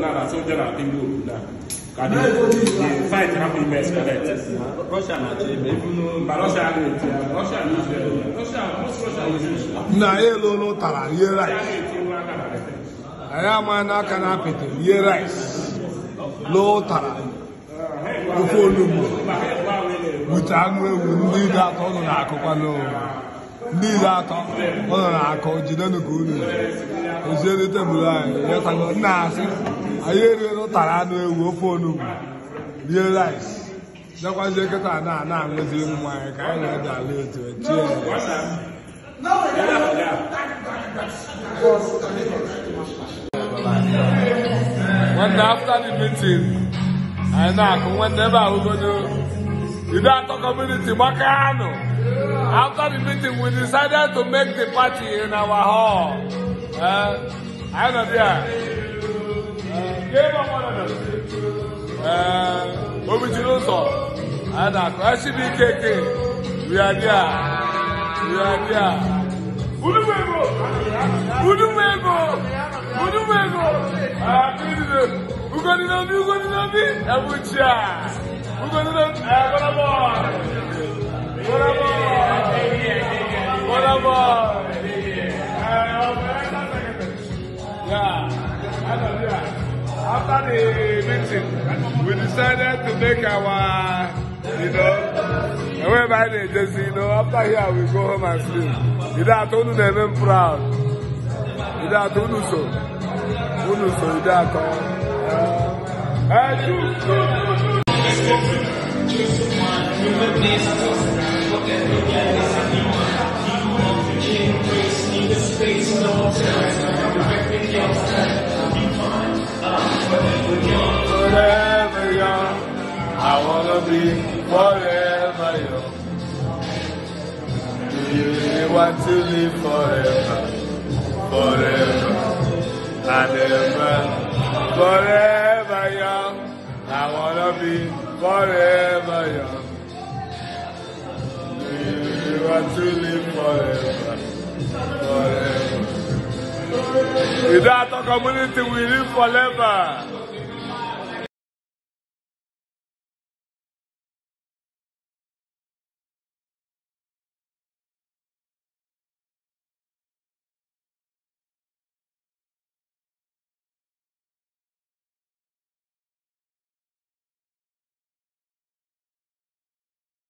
now that soldiers are being good now. Can you, fight happened best, correct? Russia and Nigeria. But Russia and Nigeria. Russia and Israel. Russia, most Russia is Israel. Na ye lo no tara, ye rice. Aya ma na aka na apịtị, ye rice. Lo tara. Ofe onugbu. Wute anụ ewu ndị dị atọ nọ n'akụkwa n'ụwa ndị iri atọ nọ na-akọ jidenụ ka unu oziere tebụl anyị ya tago nna asị anyị eruola ụtara anụ ewu ofe onugbu rie rais, dekwazie nkịta na ana aṅụzi nwa anyị ka anyị na-ede ala etu When after the meeting, anyị na-akụ nwanne ebe ahụgodo Ibe atọ community gbaka anụ After the meeting, we decided to make the party in our hall. Anyị I know ee omechiri ụzọ ada krachiri ikeke riabịa riabịa unumego unumego unumego ugodinobi ugodinobi ebuchia ugodinobi egonabo after the meeting, we decided to make our, you know, I went by the agency, you know, after here we go home and sleep. You know, I told you they've proud. You know, I told you so. You know, so you know, I told you. I do. Human beings, what they're doing. I wanna be forever young. Do you really want to live forever? Forever and ever. Forever young. I wanna be forever young. Do you really want to live forever? Forever. Without a community, we live forever.